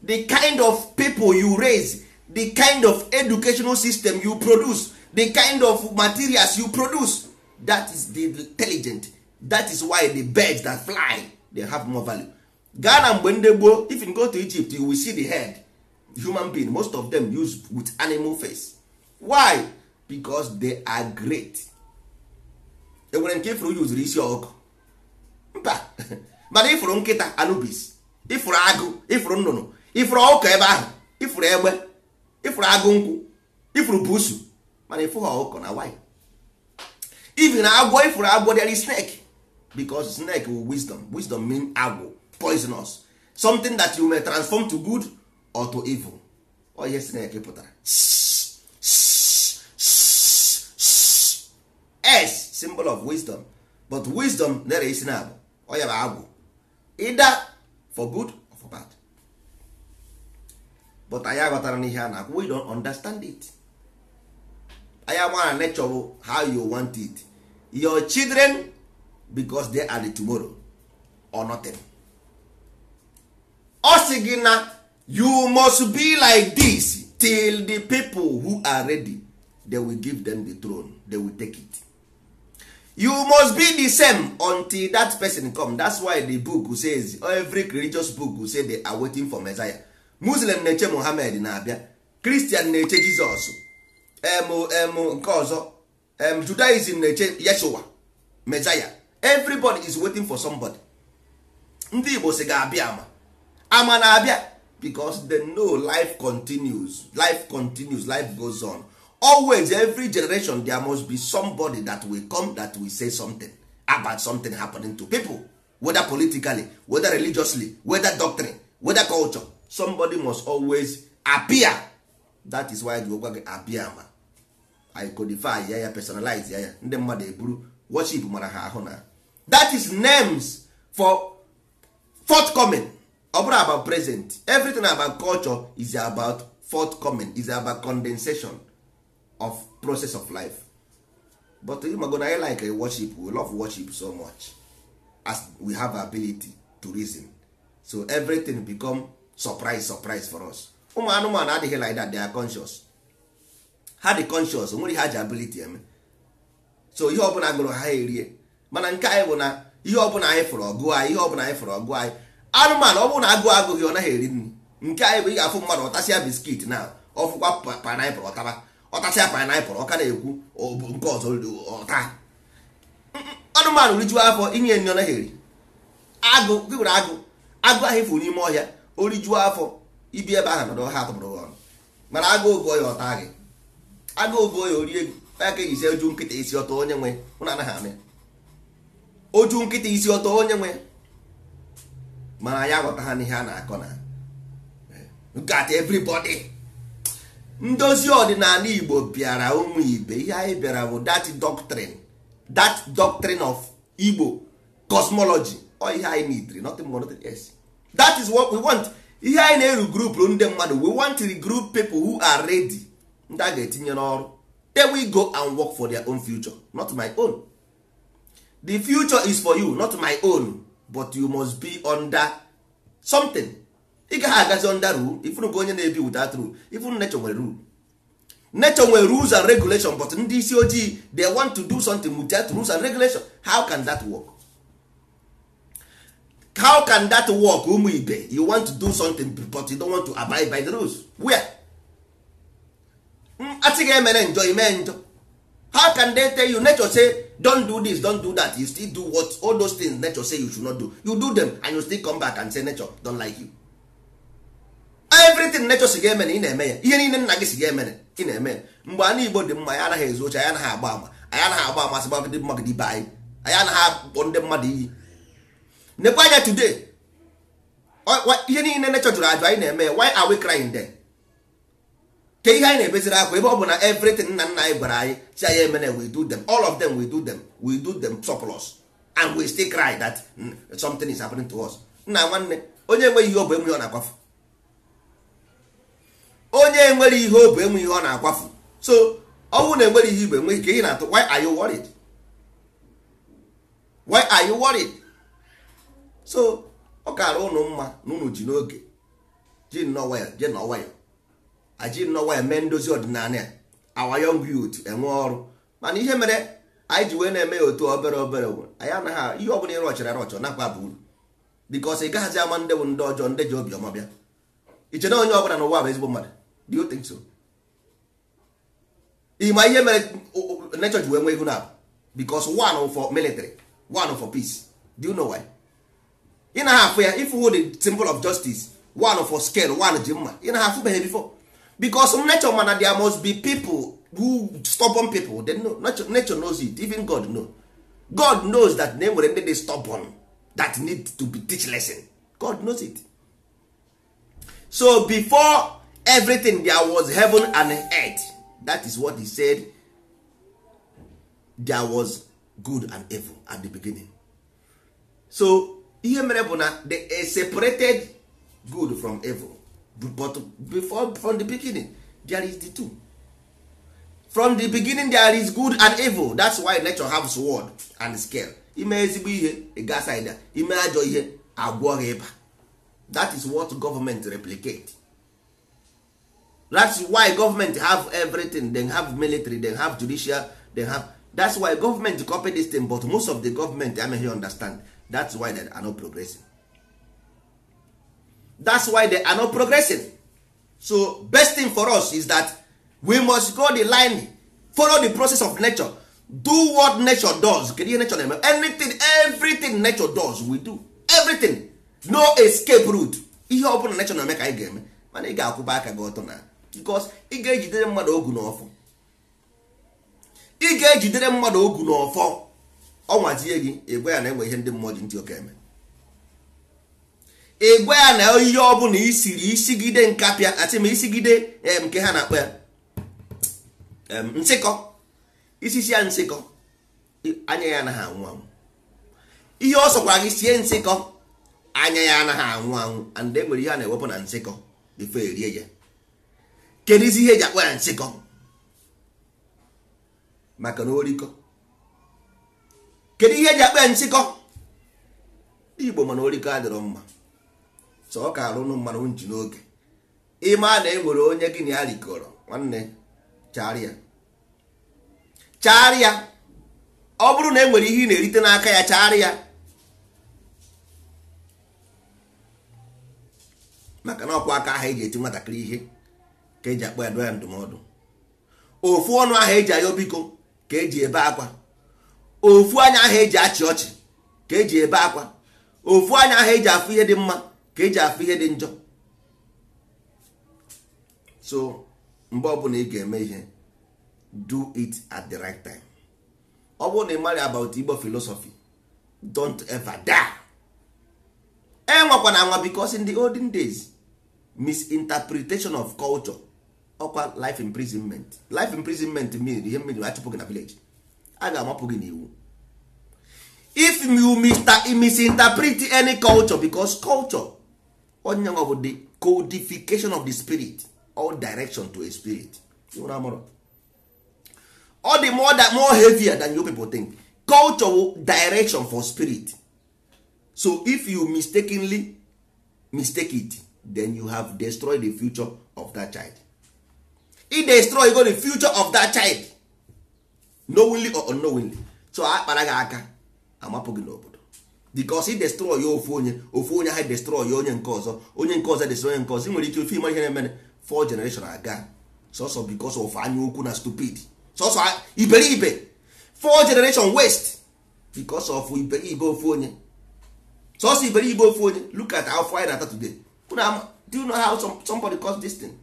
Speaker 1: the kind of people you raise the kind of educational system you produce the kind of materials you produce that is the intelligent that is why the birds that fly they have more value Ghana and mgbe ndị gboo if you go to Egypt you will see the head human being most of them use with animal face why? because they are great enwere nke ifuru yuzuru isi ọkụ mba mana ifuru nkịta anubis ifuru agụ ifuru nnụnụ ifuru ọkụ ebe ahụ ifuru egbe ifuru agụ nkwụ ifuru busu mana ifuru ọkụ na wanyị na agwọ ifuru agwọ there snek snake because snake will wisdom wisdom mean agwọ poisonous something that you may transform to good or to evil ọ oh, ihe snake pụtara s symbol of wisdom but wisdom na-ere isi na abụ ọya bụ agwụ ida for good or for bad but anyị aghọtara n'ihe a na-akwụ we don't understand it anyị amara nature bụ how you want it your children because they are the tomorrow or nothing ọ sị gị na you must be like this till the people who are ready they will give them the throne they will take it you must be the same until that person come that's why the book says every religious book say they are waiting for Messiah Muslim na-eche mohamed na-abịa Christian na-eche Jizọs em nke ọzọ Judaism na-eche Yeshua Messiah everybody is waiting for somebody ndị Igbo si ga-abịa ama ama na-abịa because they know life continues life continues life goes on always every generation there must be somebody that will come that will say something about something happening to people whether politically whether religiously whether doctrine whether culture somebody must always appear that is why the gwa appear ma i codify ya ya personalize ya ya ndị mmadụ eburu worship mara ha ahụ na that is names for forthcoming ọ bụrụ about present everything about culture is about forthcoming is about condensation of process of life but ịmago na I like eh, worship we love worship so much as we have ability to reason so everything become surprise surprise for us ụmụ anụmanụ adịghị like that they are conscious ha dị conscious nwere ha ji ability eme so ihe ọbụla gụrụ ha erie mana nke anyị bụ na ihe ọbụla anyị fụrụ ọgụ anyị ihe ọbụla anyị fụrụ ọgụ anyị anụmanụ ọ bụrụ na agụụ agụghị ọ naghị eri nri nke anyị bụ ị ga-afụ mmadụ ọtasịa biskit na ọfụkwa painiple ọtaba ọtasịa painapụl ọka na-ekwu nke ọzọ ọta anụmanụ rijuo afọ inye nri ọ naghị agụ gị nwere agụ agụ ahụ ifu n'ime ọhịa o rijuo afọ ibi ebe ahụ nọdụ ha atụpụrụ ọrụ mana agụ ogo ya ọta gị agụ ogo ya orie ya ka eji si oju nkịta isi ọtọ onye nwe na anaghị amị. oju nkịta isi ọtọ onye nwe mana ya aghọta ha n'ihe a na-akọ na gat eh, everybody ndozi ọdịnala igbo bịara ụmụ ibe ihe anyị bịara bụ that doctrine that doctrine of igbo cosmology all ihe anyị need nothing more nothing else that is what we want ihe anyị na-eru group ndị mmadụ we want to group people who are ready ndị a ga-etinye n'ọrụ then we go and work for their own future not my own the future is for you not my own but you must be under something ị gaghị agazi onda rule ifuru ka onye na-ebi without rule ifuru nature nwere rule nature nwere rules and regulation but ndị isi ojii they want to do something with that rules and regulation how can that work how can that work ụmụ ibe you want to do something but you don't want to abide by the rules where mm, asị ga emere njọ ime njọ how can they tell you nature say don do this don do that you still do what all those things nature say you should not do you do them and you still come back and say nature don like you everything nature si ga-eme na ị na-eme ya ihe niile nna gị si ga-eme ị na-eme ya mgbe ana igbo dị mma ya anaghị ezu oche anyị anaghị agba ama anyị anaghị agba dị gbagide mmadụ ibe anyị anyị anaghị akpọ ndị mmadụ iyi nekwa anya today ihe niile nature jụrụ ajụ anyị na-eme ya why are we crying then ke ihe anyị na-ebeziri akwa ebe ọ bụ na everything nna nna anyị gwara anyị si anyị emene we do them all of them we do them we do them surplus and we still cry that something is happening to us nna nwanne onye enweghị ihe ọ bụ enweghị ọ na-akwafu onye nwere ihe obi enwe ihe ọ na-akwafu so ọnwụ na enwere ihe ibe enwe ike ị na-atụ why are you worried why are you worried so ọ kara ụnụ mma na ụnụ ji n'oge ji nnọwa ya je n'ọwa aji nnọwa mee ndozi ọdịnala ya our young youth enwe ọrụ mana ihe mere anyị ji wee na-eme ya otu obere obere anyị anaghị ihe bụla ịrụ ọchara ọchọ nakwa bụ uru bikos ị gaghịzi ama ndị bụ ndị ọjọọ ndị ji obiọma bịa iche na onye ọbụla n'ụwa bụ ezigbo mmadụ do you think so ịma ihe mere nature ji wee nwee ego na because one for military one for peace do you know why ị na ha afụ ya ifu the symbol of justice one for scale one ji mma ị na ha afụbeghị before because nature mana there must be people who stubborn people they know, nature, nature knows it even God know God knows that na enwere ndị dị stubborn that need to be teach lesson God knows it so before everything there was heaven and earth that is what he said there was good and evil at the beginning so ihe mere bụ na they separated good from evil but before from the beginning there is the two from the beginning there is good and evil that's why nature has sword and scale ime ezigbo ihe gasida ime ajọ ihe agwọ ịba that is what government replicate that's why government have everything they have military they have judicial they have that's why government copy this thing but most of the government amaghị understand that's why they are not progressing that's why they are not progressing so best thing for us is that we must go the line follow the process of nature do what nature does kedu ihe nature na anything everything nature does we do everything no escape route ihe ọ bụla nature na-eme ka anyị ga-eme mana ị ga-akwụba aka gị ọtọ na because ị ga-ejidere mmadụ ogu n'ọfọ ị ga-ejidere mmadụ ogu n'ọfọ ọnwazie gị ịgwa ya na enwe ihe ndị mmụọ ji ntị oke eme ịgwa ya na ihe ọ bụla isiri isigide nkapịa atị ma isigide eh, nke ha na-akpọ ya nsịkọ isisi ya nsịkọ anya ya anaghị anwụ anwụ ihe ọ sọkwara gị sie nsịkọ anya ya anaghị anwụ anwụ and enwere ihe a na-ewepụ na nsịkọ bifo erie ya kedu isi ihe eji akpọ ya nsịkọ maka na orikọ kedu ihe eji akpọ ya igbo mana orikọ adịrọ mma so ọ ka arụnụ mmanụ nji n'oge ịma na e nwere onye gị na ya rikọrọ nwanne charịa charịa ọ bụrụ na e nwere ihe ị na-erite n'aka ya ya maka na ọkwa aka ahụ e ji eti nwatakịrị ihe ka eji akpọ ya dụọ ya ndụmọdụ ofu ọnụ ahụ eji ayọ biko ka eji ebe akwa ofu anya ahụ eji achị ọchị ka eji ebe akwa ofu anya ahụ eji afụ ihe dị mma ka eji afụ ihe dị njọ so mgbe ọbụla ị ga-eme ihe do it at the right time ọ bụrụ na ị mara about Igbo filosofi. don't ever die enwekwana anwa because in the olden days misinterpretation of culture ọkwa life imprisonment life imprisonment mean ihe mmiri achụpụ gị na village a ga-amapụ gị n'iwu if you misinterpret any culture because culture onye nwa bụ the codification of the spirit or direction to a spirit ọ dị more, more heavier than you people think culture direction for spirit so if you mistakenly mistake it then you have destroyed the future of that child i destroy go the future of that child knowingly or unknowingly so a kpara gị aka amapụ gị n'obodo because i destroy ya ofu onye ofu onye ha destroy ya onye nke ọzọ onye nke ọzọ destroy onye nke ọzọ ị nwere ike ofe ịma ihe na-emere four generation aga sọsọ because of anya ukwu na stupid sọsọ iberibe four generation waste because of iberibe ofu onye sọsọ iberibe ofu onye look at how far na ata today do you know how somebody caused this thing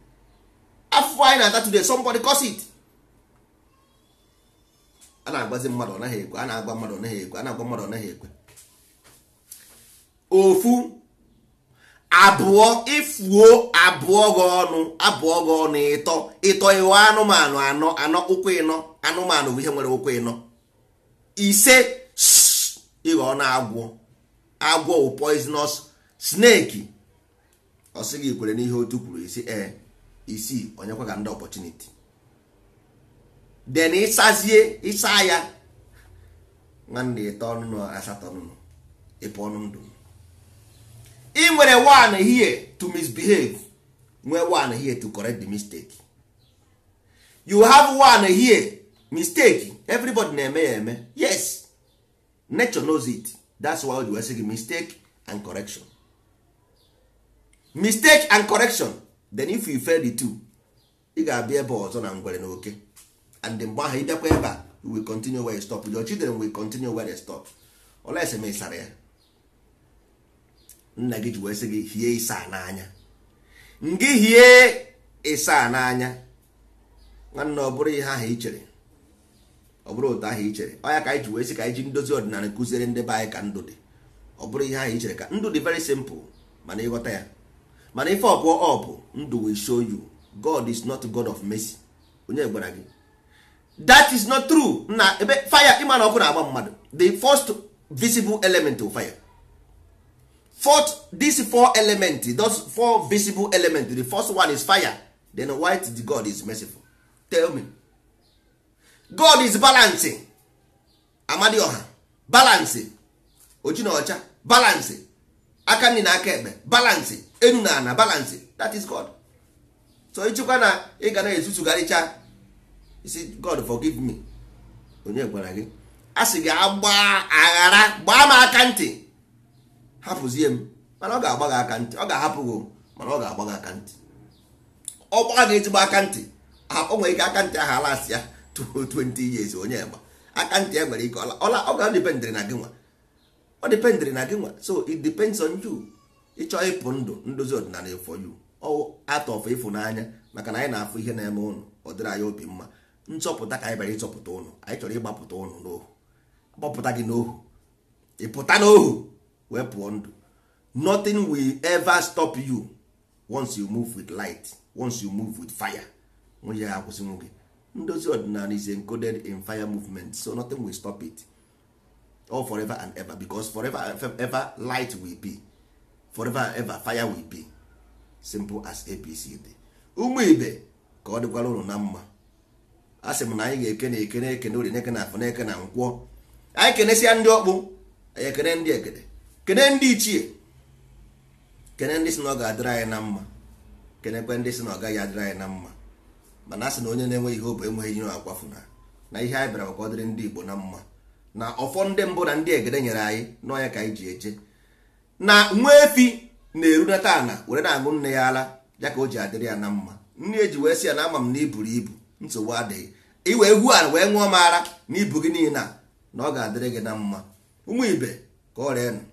Speaker 1: afụfụ anyị na-ata today somebody cause it a na-agbazi mmadụ ọ ekwe a na agwa mmadụ ọ ekwe a na agwa mmadụ ọ naghị ekwe ofu abụọ ịfụo abụọ gị ọnụ abụọ gị ọnụ ịtọ ịtọ ịghọ anụmanụ anọ anọ ụkwụ ịnọ anụmanụ bụ ihe nwere ụkwụ ịnọ ise ịghọ na agwọ agwọ poisonous snake ọ sị gị kwere n'ihe otu kwuru isi ee eh, isii onyekwa ga ndị ọpọchuniti den ịsazie ịsa ya nwanne ịtọ ọnụnụ asatọ ọnụnụ ịpụ ọnụ ndụ ị nwere one here to misbehave nwee one here to correct the mistake you have one here mistake everybody na-eme ya eme yes nature knows it that's why we say mistake and correction mistake and correction then if you fail the two ị ga-abịa ebe ọzọ na ngwere na oke and mgbe ahụ ịbịakwa ebe a we continue where you stop your children will continue where they stop ese m ịsara ya nna gị ji wee sị gị hie ịsa n'anya ngị hie ịsa n'anya nwanne ọ bụrụ ihe ahụ ị chere ọ bụrụ otu ahụ ị chere ọ ya ka anyị ji wee sị ka anyị ji ndozi ọdịnala kụziere ndị be anyị ka ndụ dị ọ bụrụ ihe ahụ ị chere ka ndụ dị very simple mana ịghọta ya mana ife ọbụ up ndụ will show you god is not god of mercy onye gwara gị that is not true na ebe fire ịma na ọkụ na-agba mmadụ the first visible element of fire fourth this four element those four visible element the first one is fire then why the god is merciful tell me god is balancing amadioha balancing oji na balancing aka nri na aka ekpe balancing enu na ana balance that is god so ịchịkwa na ị ga na-ezutugharịcha isi god forgive me onye gwara gị a sị gị agba aghara gbaa m aka ntị hapụzie m mana ọ ga-agba gị aka ntị ọ ga-ahapụ gị mana ọ ga-agba gị aka ntị ọ gbaa gị ezigbo aka ntị o nwere ike aka ntị ahụ alasị ya 20 years onye gba aka ntị ya e nwere ike ọ ga-adịpendịrị na gị nwa ọ dịpendịrị na gị nwa so it depends on you. ịchọ ịpụ ndụ ndozi ọdịnala for you atọ atọfụ ịfụnanya maka na anyị na-afụ ihe na-eme ụnụ ọ dịrị anyị obi mma nchọpụta ka anyị bịara ịchọpụta ụnụ anyị chọrọ ịgbapụta ụnụ n'ohu gbapụta gị n'ohu ịpụta n'ohu wee pụọ ndụ nothing will ever stop you once you move with light once you move with fire nwunye ya akwụsị nwoke ndozi ọdịnala is encoded in fire movement so nothing will stop it all forever and ever because forever and ever light will be forever ever fire will be simple as apc dị ụmụ ibe ka ọ dịkwara ụlọ na mma a sị m na anyị ga-ekene eke ekene ori na-ekene n'eke na-ekene na nkwọ anyị kenesịa ndị ọkpụ anyị ekene ndị ekene kene ndị ichie kene ndị si na ọ ga-adịrị anyị na mma kenekwe ndị si na ọ gaghị adịrị anyị na mma mana a sị na onye na-enweghị hope enweghị ihe akwafu na na ihe anyị bịara ka ọ dịrị ndị igbo na mma na ọfọ ndị mbụ na ndị egede nyere anyị n'ọnya ka anyị ji eje na nwa efi na-erunata ana were na-aṅụ nne ya ala ya ka o ji adịrị ya na mma nne eji wee sị ya na ama m na iburu ibu nsogbu adịghị iwe egwu ala wee ṅụọ m ara na ibu gị niile na ọ ga-adịrị gị na mma ụmụ ibe ka ọ